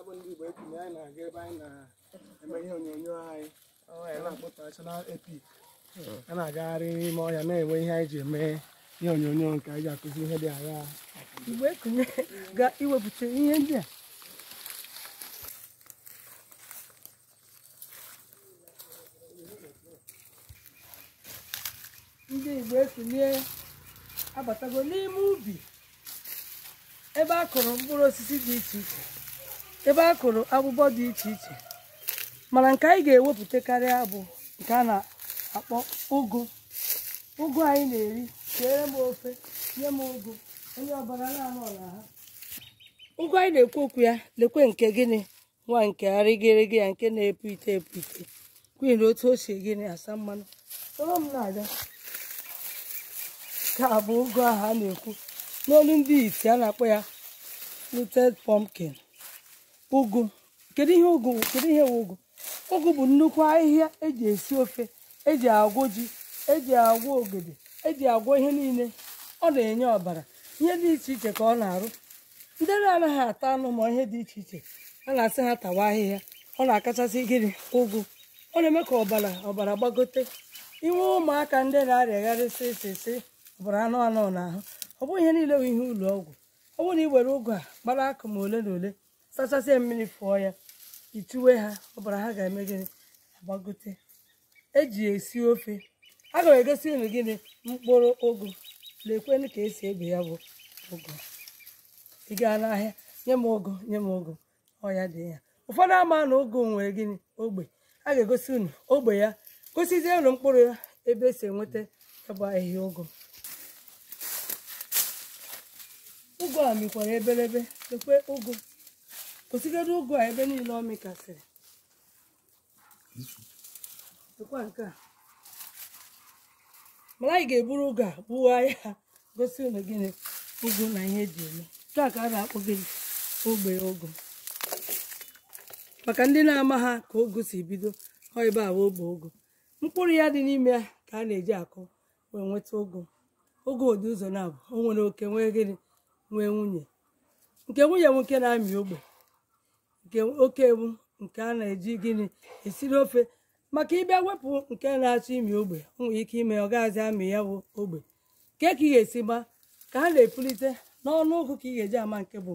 abụ ndị Igbo etinye anyị na-aga ebe anyị na-eme ihe onyonyo anyị nashọnal epik hmm. a na-agagharị n'ime ọhịa na-enwe ihe anyị ji eme ihe onyonyo nke anyị ji akụzi ihe dị agha iwepụta ihe ndị a ndị Igbo ekunye abatago n'ime ubi ebe a kụrụ mkpụrụ osisi dị iche iche ebe a kụrụ agbụgbọ dị iche iche mana nke anyị ga ewepụtakarị abụ bụ nke a na-akpọ ụgụ ụgụ anyị na-eri keere m ofe nye m ụgụ onye ọbara na-anọ ọla ha ụgụ anyị na-ekwu okwu ya lekwe nke gịnị nwa nke arịgịrịgị ya nke na-epu ite epu ite kwuhi na otu o si gịnị asa mmanụ soro m na-abịa nke bụ ụgụ ahụ a na-ekwu n'olu ndị iti a na-akpọ ya lutet pumpkin ụgụ kedu ihe ụgụ kedu ihe wụ ụgụ ụgụ bụ nnukwu ahịhịa eji esi ofe eji agwọ ji eji agwọ ogede eji agwọ ihe niile ọ na-enye ọbara ihe dị iche iche ka ọ na-arụ ndị anaghị ata anụ ma ihe dị iche iche a na-asị ha tawa ahịhịa ọ na-akachasị gịnị ụgụ ọ na-eme ka ọbara ọbara gbagote inwe ụmụaka ndị na-arịagharịsị sịsị ọbara anụ anụ n'ahụ ọ bụghị ihe niile bụ ihe ụlọ ọgwụ ọ bụrụ na ị were ụgụ a gbara akụ ma ole na ole sachasịa mmiri fụọ ya ituwe ha ọbara ha ga-eme gịnị agbagote eji esi ofe aga m egosi unu gịnị mkpụrụ ụgụ lekwenụ ka esi ebe ya bụ ụgụ ị gaa n'ahịa nye m ụgụ nye m ụgụ ọya dị ya ụfọdụ ama na ụgụ nwere gịnị ogbe a ga-egosi unu ogbe ya gosizie unu mkpụrụ ya ebe esi enweta ịbụ ahịhịa ụgụ ụgụ a mikwara ebelebe lekwe ụgụ kwụsịgoro ụgụ a ebe niile ọ mịkasịrị dịkwa nke a mara anyị ga-eburu ụgụ a gbuwa ya gosi unu gịnị ụgụ na ihe eji eme nke a ka a na-akpọ gị ogbe ụgụ maka ndị na-ama ha ka ogu si bido ọ ebe a ogbe ụgụ mkpụrụ ya dị n'ime ya ka a na-eji akụ wee nweta ụgụ ụgụ ụdị ụzọ na-abụ o nwere oke nwee gịnị nwee nwunye nke nwunye nwoke na-amị ogbe nke oke ewu nke a na-eji gịnị esiri ofe maka ịbịa wepụ nke na-achọ imi ogbe nwere ike ime ọ gaghịzi amị ya ogbe nke ka ị ga-esi gba ka ha na-epulite n'ọnụ ụgụ ka ị ga-eji ama nke bụ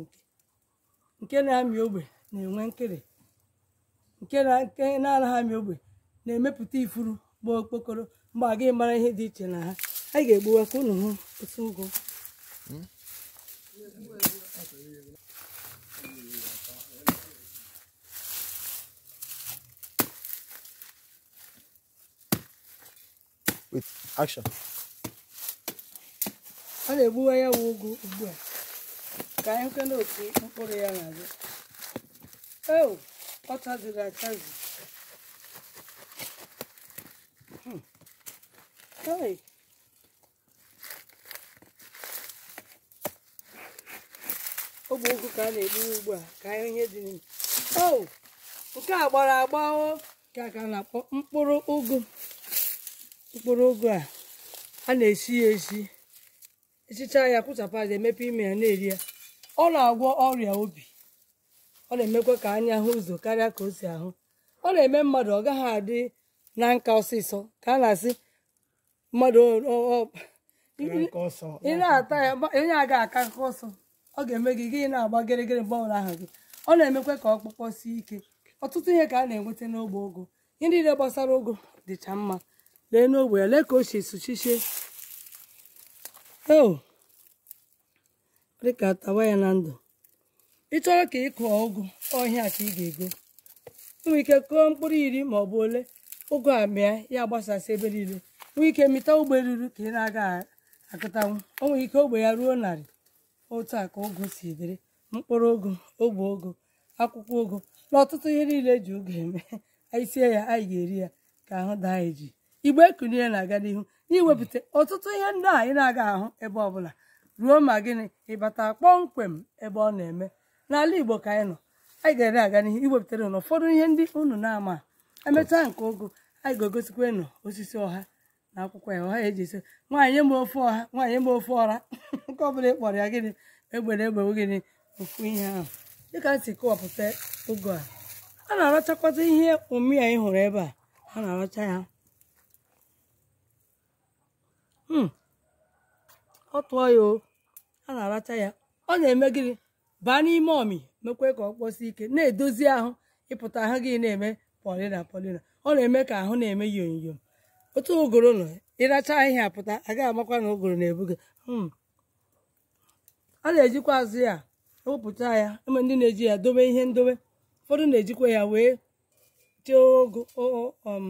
nke nke na-amị ogbe na-enwe nkịrị nke na-anaghị amị ogbe na-emepụta ifuru gba okpokoro mgbe a gaghị mara ihe dị iche na ha anyị ga-egbuwa ka ụnụ hụ otu ụgụ with action a na egbu ya wụ ụgụ ugbu a ka anyị hụke n'otu mkpụrụ ya na-abịa eo oh, ọ chaziri achazi hmm. Hey. ọ bụ ụgụ ka a na-egbu ugbu a ka anyị ihe dị n'ime o oh, nke a gbara agba o ka ka na-akpọ mkpụrụ ugwu mkpụrụ ụgụ a a na-esi ya esi esichaa ya kụchapụ emepe ime ya na-eri ya ọ na-agwọ ọrịa obi ọ na-emekwa ka anya hụ ụzọ karịa ka o si ahụ ọ na-eme mmadụ ọ gaghị adị na nka ọsịsọ ka a na-asị mmadụ ị na-ata ya onye a aka aka ọsọ ọ ga-eme gị gị na-agba gịrịgịrị mgbe ọbụla ahụ gị ọ na-emekwa ka ọkpụkpọ sie ike ọtụtụ ihe ka a na-enweta n'ogbe ụgụ ihe niile gbasara ụgụ dịcha mma lee n'ogbe ya lee ka o si esuchichie o dịka tawa ya na ndụ ị chọrọ ka ị kụọ ụgụ ọhịa ka ị ga-ego nwee ike kụọ mkpụrụ iri ma ọ bụ ole ụgụ a mịa ya gbasasị ebe niile nwee ike mịta ogbe ruru ka ị na-aga akụtanwu o ike ogbe ya ruo narị otu a ka ụgụ si dịrị mkpụrụ ụgụ ogbe ụgụ akwụkwọ ụgụ na ọtụtụ ihe niile eji ụgụ eme anyị sie ya anyị ga-eri ya ka ahụ daa eji. igbe kulie na-aga n'ihu iwepụta ọtụtụ ihe ndị a ị na-aga ahụ ebe ọbụla ruo ma gịnị ịbata kpọmkwem ebe ọ na-eme n'ala Igbo ka anyị nọ anyị ga-ere aga n'ihu iwepụtara ụlọ ụfọdụ ihe ndị unu na-ama emechaa nke ogo anyị ga-egosikwa ịnụ osisi ọha na akwụkwọ ya ọha eji esi nwaanyị eme ofe ọha nwaanyị mgbe ofe ọra nke ọbụla bụla kpọrọ ya gịnị egbere egbewe gịnị ofu ihe ahụ dịka m si kọwapụta ụgụ a a na-arachakwata ihe ụmị ya ị hụrụ ebe a a na-aracha ya Hmm. ọ tụọ ya o a na-aracha ya ọ na-eme gịnị baa n'ime ọmị mekwe ka ọ kpọsi ike na-edozi ahụ ịpụta ahụ gị na-eme polina polina ọ na-eme ka ahụ na-eme yonyom otu ụgụrụ nọ ịracha ahịhịa pụta agaghị amakwa na ụgụrụ na-ebu gị hmm. a na-ejikwa azụ ya wepụta ya eme ndị na-eji ya dobe ihe ndobe ụfọdụ na-ejikwa ya wee chee ogo um,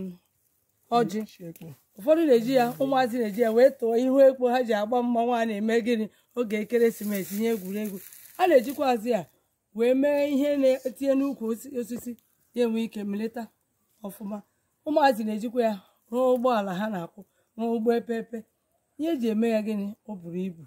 ọjị ụfọdụ na-eji ya ụmụazị na-eji ya wee tụọ ihu ekpo ha ji agba mma a na-eme gịnị oge ekeresimesi ihe egwuregwu a na-ejikwazi ya wee mee ihe na-etinye n'ukwu osisi ya enwe ike melita ọfụma ụmụazị na-ejikwa ya rụọ ụgbọala ha na akwụ rụọ ụgbọ epepe ihe eji eme ya gịnị ọ buru ibu